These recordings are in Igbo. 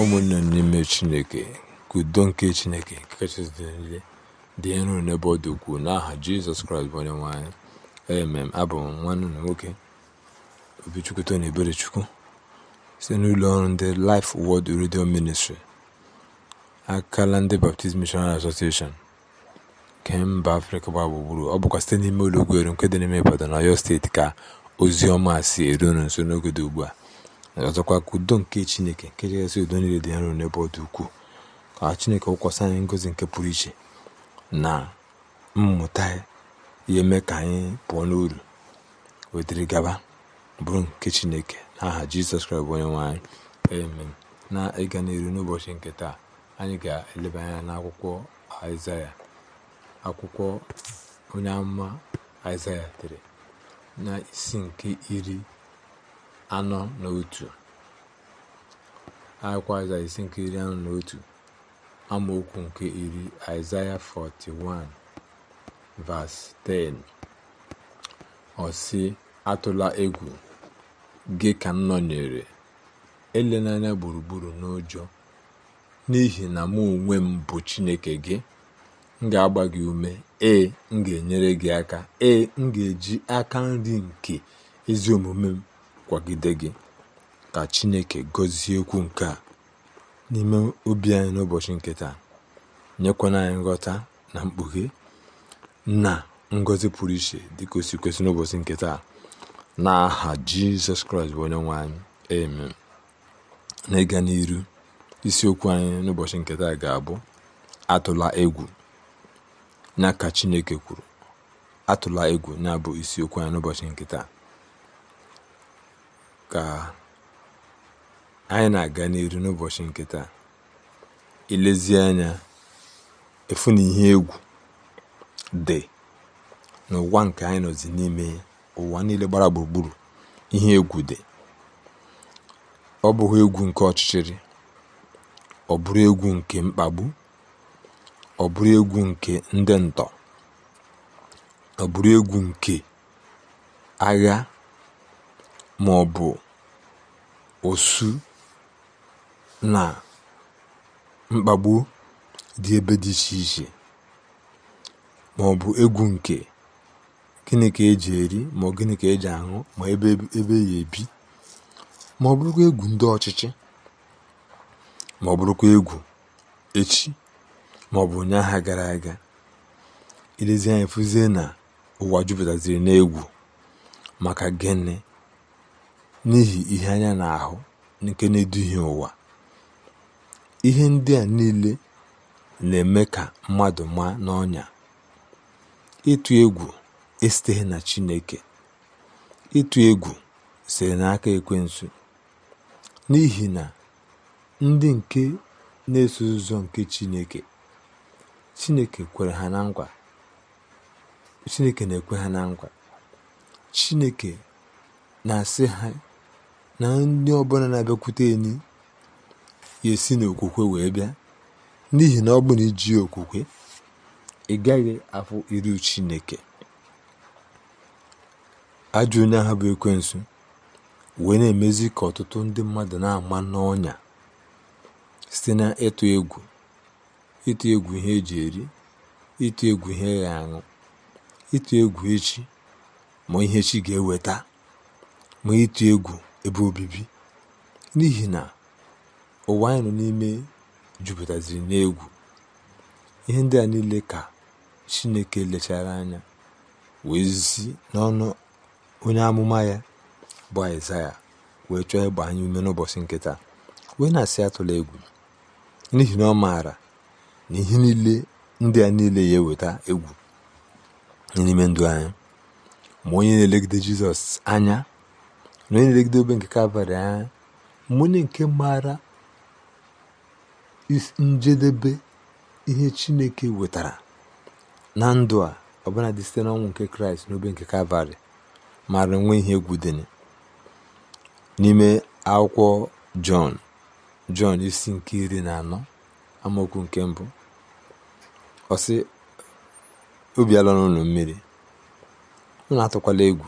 ụmụnne n'ime Chineke kudo udo nke Chineke nke kachasị dị niile dị nro n'ebe ọ dị ukwuu n'aha Jizọs Kraịst bụ onye nwanyị anyị emem abụ m nwanne na nwoke Obichukwu Tony Eberechukwu site n'ụlọ ọrụ ndị Life wọd redio ministri akala ndị Baptist Missionary Association nke mba Afrịka gbaa gburugburu ọ bụkwa site n'ime ụlọ ogwero nke dị n'ime Ibadan na Ọyọ steeti ka ozi ọma si eru nso n'oge dị ugbu a ọzọkwa ka udo nke chineke nke kachasị udo niile dị nro n'ebe ọ dị ukwuu ka chineke wụkwasị anyị ngozi nke pụrụ iche na mmụta ihe mee ka anyị pụọ n'uru wetara gaba bụrụ nke chineke aha jizọs kraịst onye nwe anyị na ịga n'elu n'ụbọchị nke taa anyị ga-eleba anya n'akwụkwọ aịzaya akwụkwọ onye amụma aịzaya dere na isi nke iri anọ na otu akwụkwọ isi nke iri anọ na otu amaokwu nke iri Aịzaya 41 vas 10 ọ atụla egwu gị ka m nọnyere elenanya gburugburu n'ụjọ n'ihi na mụ onwe m bụ Chineke gị m ga-agba gị ume ee m ga-enyere gị aka ee m ga-eji aka nri nke ezi omume m kwagide gị ka chineke gọzie okwu nke a n'ime obi anyị n'ụbọchị nke taa nyekwana anyị nghọta na mkpughe na ngọzi pụrụ iche dịka o kwesị n'ụbọchị nke taa aha jizọs kraịst bụ onye nwe anyị amen na ịga n'iru isiokwu anyị n'ụbọchị nke taa ga-abụ atụla egwu na ka chineke kwuru atụla egwu na-abụ isiokwu anyị n'ụbọchị nke taa Ka anyị na aga n'ihu n'ụbọchị nkịta taa, anya, efu na ihe egwu dị n'ụwa nke anyị nọzi n'ime ụwa niile gbara gburugburu. Ihe egwu dị. Ọ bụghị egwu nke ọchịchịrị, ọ bụrụ egwu nke mkpagbu, ọ bụrụ egwu nke ndị ntọ, ọ bụrụ egwu nke agha maọbụ osu na mkpagbu dị ebe dị iche iche maọbụ ọ egwu nke gịnị ka eji eri ma gịnị ka eji aṅụ ma ebe ebe ya ebi ma ọ bụrụkwa egwu ndị ọchịchị ma ọ bụrụkwa egwu echi ma ọ bụ ụnyaahụ gara aga Ilezi anyị, fụzie na ụwa jupụtaziri n'egwu maka gịnị n'ihi ihe anya na-ahụ nke na-eduhie ụwa ihe ndị a niile na-eme ka mmadụ maa n'ọnya ịtụ egwu esiteghị na Chineke ịtụ egwu siri n'aka ekwensu n'ihi na ndị nke na-eso ụzọ nke Chineke Chineke kwere ha na nkwa Chineke na-ekwe ha na nkwa Chineke na-asị ha na ndị ọbụla na-abịakwute enyi ya esi n'okwukwe wee bịa n'ihi na ọ bụ na iji okwukwe ị gaghị afụ iru chineke ajọ onye ahụ bụ ekwensu wee na-emezi ka ọtụtụ ndị mmadụ na-ama n'ọnya site na ịtụ egwu ịtụ egwu ihe eji eri ịtụ egwu ihe ya aṅụ ịtụ egwu echi ma ihe chi ga-eweta ma ịtụ egwu ebe obibi n'ihi na ụwa anyị nọ n'ime jupụtaziri n'egwu ihe ndị a niile ka chineke lechara anya wee zi n'ọnụ onye amụma ya bụ aịzaya wee chọọ ịgba anyị ume n'ụbọchị nkịta wee na-asị atụla egwu n'ihi na ọ maara na ihe niile ndị a niile ya eweta egwu n'ime ndụ anyị ma onye na-elegide jizọs anya na onye na obe nke kalvarị anya mgbe nke maara njedebe ihe chineke wetara na ndụ a ọbụla dị site n'ọnwụ nke kraịst n'obe nke kalvarị mara nwee ihe egwu n'ime akwụkwọ jọn jọn isi nke iri na anọ amaokwu nke mbụ ọsị obi ala n'ụlọ mmiri na atụkwala egwu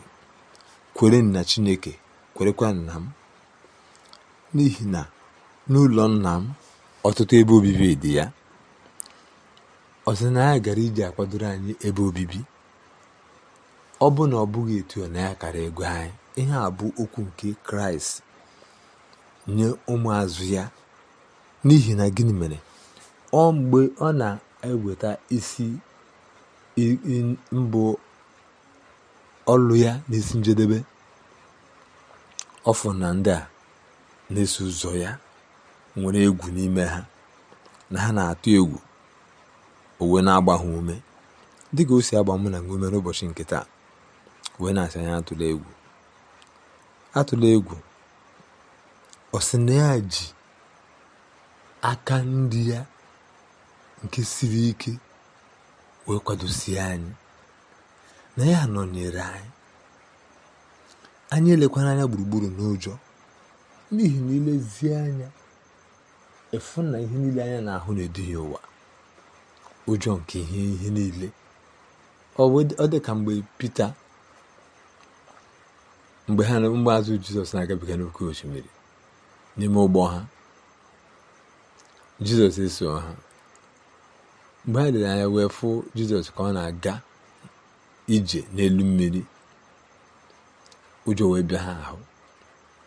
kwere na chineke kwerekwa nna m n'ihi na n'ụlọ nna m ọtụtụ ebe obibi dị ya ọsị na ya gara iji akwadoro anyị ebe obibi ọ bụ na ọ bụghị etu na ya kara ego anyị ihe a bụ okwu nke kraịst nye ụmụazụ ya n'ihi na gịnị mere ọ mgbe ọ na-eweta isi mbụ ọlụ ya n'isi njedebe ọfụ na ndị a na-eso ụzọ ya nwere egwu n'ime ha na ha na-atụ egwu owe na-agba ha ume dịka o si agba mụ na ume n'ụbọchị nke taa wee na-asị anya atụla egwu atụla egwu ọ na ya ji aka ndị ya nke siri ike wee kwadosie anyị na ya nọnyere anyị anyị elekwana anya gburugburu n'ụjọ n'ihi na ilezie anya efu na ihe niile anya na-ahụ na-eduhie ụwa ụjọ nke ihe ihe niile ọ dị ka mgbe Pita mgbe ha mgbe azụ Jizọs na-agabiga n'oké osimiri n'ime ụgbọ ha Jizọs eso ha mgbe ha dị anya wee fụ Jizọs ka ọ na-aga ije n'elu mmiri ụjọ wee bịa ha ahụ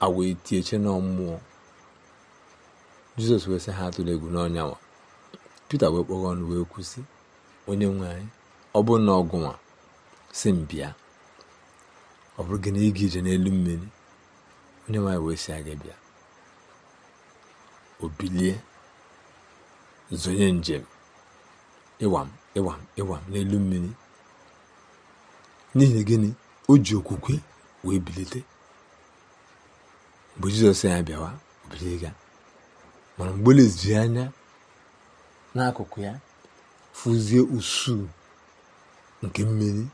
a wee tie che nọ mmụọ jizọs wee sị ha atụla egwu n'ọnyanwa pete wee kpọghọ ọnụ wee kwụsị onye nwe anyị ọ na ọgụnwa si m bịa ọ bụrụ gị na ịga ije n'elu mmiri onye nwaanyị wee si aga bịa o zonye njem ịwam ịwam ịwam n'elu mmiri n'ihi gịnị o ji okwukwe wee bilite mgbe jizọs ya bịawa obiliga mana mgbe leziri anya n'akụkụ ya fụzie usuu nke mmiri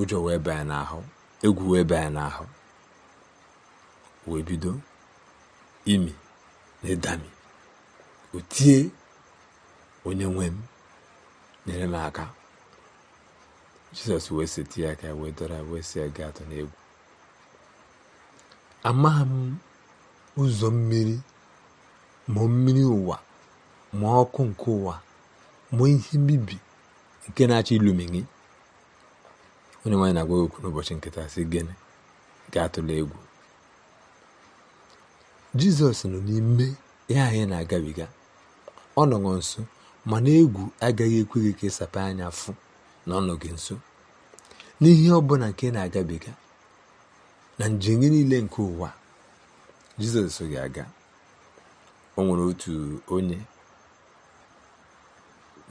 ụjọ wee baa n'ahụ egwu wee baya n'ahụ wee bido imi na ịdami o onye nwe m nyere m aka jizọs wee seti ya aka wee dọrọ wee si gaa atọ n'egwu amaghị m ụzọ mmiri ma mmiri ụwa ma ọkụ nke ụwa ma ihe mbibi nke na-achọ ilumi gị onye nwaanyị na-agwa okwu n'ụbọchị nkịta si gịnị gaa atụla egwu jizọs nọ n'ime ya anyị na-agabiga ọ nọghọ nso mana egwu agaghị ekwe gị ka ịsapa anya fụ na gị nso n'ihe ọbụla nke na-agabiga na njem gị niile nke ụwa jizọs ga-aga o nwere otu onye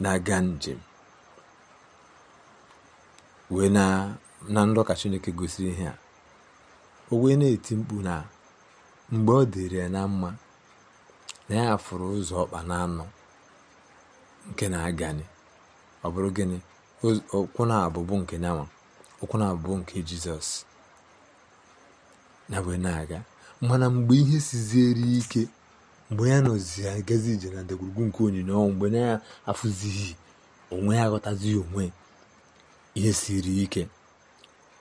na-aga njem wee na na ndọka chineke gosiri ihe a o wee na-eti mkpu na mgbe ọ dịrị ya na mma na ya fụrụ ụzọ ọkpa na anụ nke na-agani ọ bụrụ gịnị okwu na-abụbụ nke nyanwa okwu na-abụbụ nke jizọs na wee na-aga mana mgbe ihe siziere ike mgbe ya nọzi ya agazi ije na ndagwurugwu nke onyinye ọnwụ mgbe ya afụzighị onwe ya aghọtazighị onwe ihe siri ike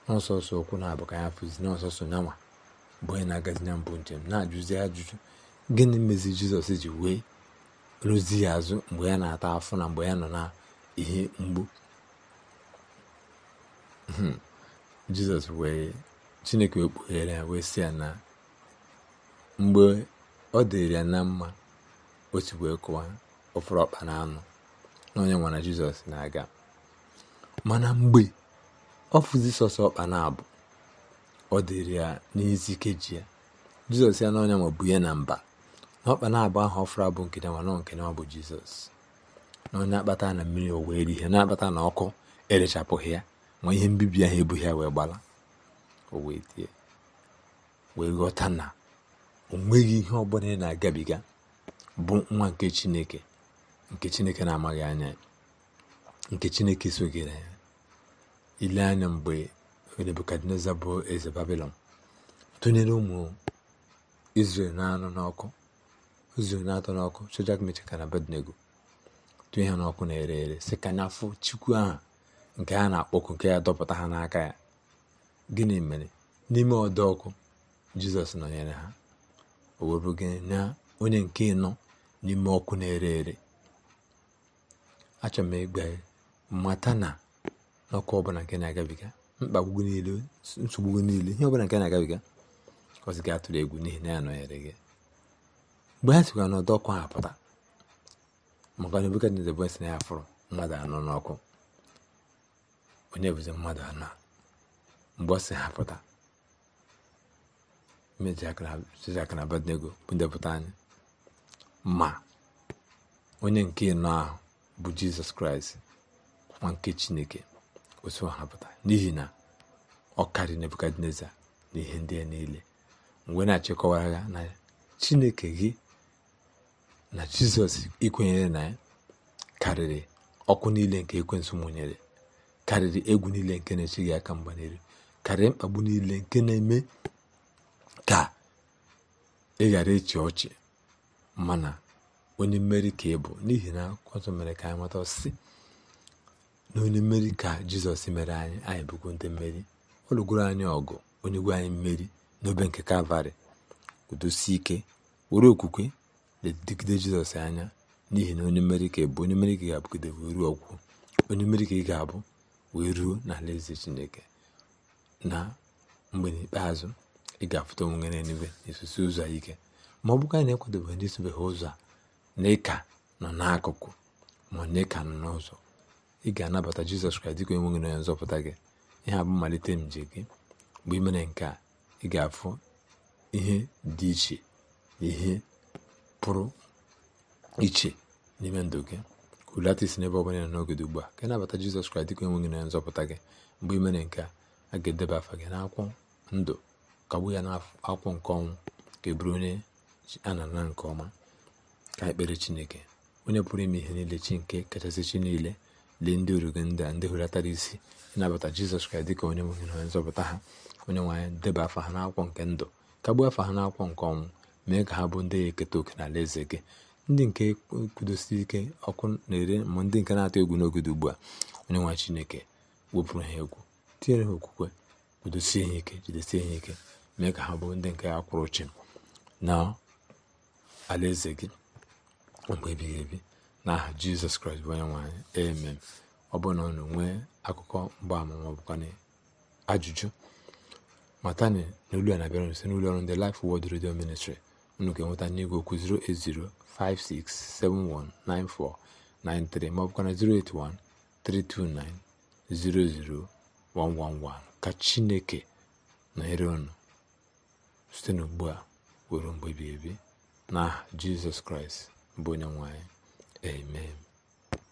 n'ọsọsọ okwu na-abụ ka ya fụzi n'ọsọsọ nyanwa mgbe onye na-agazi na mbụ njem na-ajụzi ajụjụ gịnị mezi jizọs ji wee rụzi ya azụ mgbe ya na-ata afọ na mgbe ya nọ na ihe mgbu Hmm. jizọs wee chineke wee kpughere ya wee si ya na mgbe ọ dịrị ya na mma otu wee kụwa ọfụrụ ọkpa na anụ na onye nwana jizọs na-aga mana mgbe ọ fụzi sọsọ ọkpa na abụ ọ dịrị ya n'ezi ikeji ya jizọs ya na ma bụ ya na mba na ọkpa na abụ ahụ ọfụrụ abụ nke nwana nke nwa bụ jizọs na onye akpata na mmiri o wee ihe na-akpata na ọkụ erechapụghị ya ma ihe mbibi ahụ ebughị ya wee gbala o wee tie wee ghọta na o nweghị ihe ọbụla ị na-agabiga bụ nwa nke chineke nke chineke na-amaghị anya nke chineke soghị na ya ile anya mgbe nebukadneza bụ eze babilọn tụnyere ụmụ izrel na-anụ n'ọkụ izrel na-atọ n'ọkụ chojak mechaka na abednego tụnye ha n'ọkụ na-ere ere sị ka na ere chukwu aha nke ha na-akpọku nke ya dọpụta ha n'aka ya gịnị mere n'ime ọdọ ọkụ jizọs nọnyere ha o wee na onye nke ịnọ n'ime ọkụ na-ere ere achọrọ m ịgba mata na n'ọkụ ọbụla nke na-agabiga mkpagbu niile nsogbu niile ihe ọbụla nke na-agabiga ọzi gị atụrụ egwu n'ihi na ya nọnyere gị mgbe ha sikwa n'ọdọ ọkụ ha pụta maka na ebukadneze bụ si na ya fụrụ mmadụ anọ n'ọkụ onye bụzi mmadụ anọ mgbe ọ si ha pụta mejijaka na anyị ma onye nke nọ ahụ bụ jizọs kraịst nwa nke chineke otu hapụta n'ihi na ọ karịrị nebukadneza na ihe ndị a niile mgbe na-achịkọwara ya na chineke gị na jizọs ikwenyere na ya karịrị ọkụ niile nke ekwensu mụnyere karịrị egwu niile nke na gị aka mgba n'elu karịrị mkpagbu niile nke na-eme ka ị ghara ịchị ọchị mana onye mmeri ka ị bụ n'ihi na akwụkwọ mere ka anyị mata ọsịsị na onye mmeri ka jizọs mere anyị anyị bụkwa ndị mmeri ọ lụgoro anyị ọgụ onye gwa anyị mmeri n'obe nke kalvarị udosi ike were okwukwe na jizọs anya n'ihi na onye mmeri ka ị bụ onye mmeri ka ị ga-abụgide ruo ọgwụgwụ onye mmeri ka ị ga-abụ wee ruo n'alaeze chineke na mgbe n'ikpeazụ ị ga-afụta onwe n'eluigwe na ụzọ ike ma ọ bụkwa na ekwadobeghị ndị sobeghị ụzọ a na nọ n'akụkụ ma na ịka nọ n'ụzọ ị ga-anabata jizọs kraịst dịka onye nwe na onye nzọpụta gị ihe abụ mmalite nje gị mgbe ị mere nke a ị ga-afụ ihe dị iche ihe pụrụ iche n'ime ndụ gị hulata isi n'ebe ọbụla n'ogodo ugbu a ka nabata jizọs kraịst dịka enweghị na nzọpụta gị mgbe ị mere nke a a ga-edeba afa gị n'akwụkwọ ndụ kagbu ya n'akwụkwọ nke ọnwụ ka eburu onye a na nke ọma ka ekpere chineke onye pụrụ ime ihe niile chi nke kachasị chi niile lee ndị uru gị ndị a ndị hulatara isi ịnabata jizọs kraịst dịka onye nweghị na nzọpụta ha onye nwanyị deba afa ha n'akwụkwọ nke ndụ kagbuo afa ha n'akwụkwọ nke ọnwụ mee ka ha bụ ndị eketa oke ala eze gị ndị nke kwudosiri ike ọkụ na-ere ma ndị nke na-atụ egwu n'oge ugbu a onye nwa chineke wepụrụ ha egwu tinyere ha okwukwe kwudosie ha ike jidesie ha ike mee ka ha bụ ndị nke ya kwụrụ chi na alaeze gị mgbe ebighị ebi n'aha jizọs kraịst bụ onye nwanyị emem ọ bụrụ na ọnụ nwee akụkọ mgbaama ma ajụjụ matani na olu a na-abịara nso n'ụlọ ọrụ ndị Life Word redio Ministry unu ga-enweta n'igwe okwu 08056719493 maọbụkwana 08132900111 ka chineke nọnyere unu site n'ugbu a ruo mgbe ebighị ebi n'aha jizọs kraịst bụ onye nwanyị amen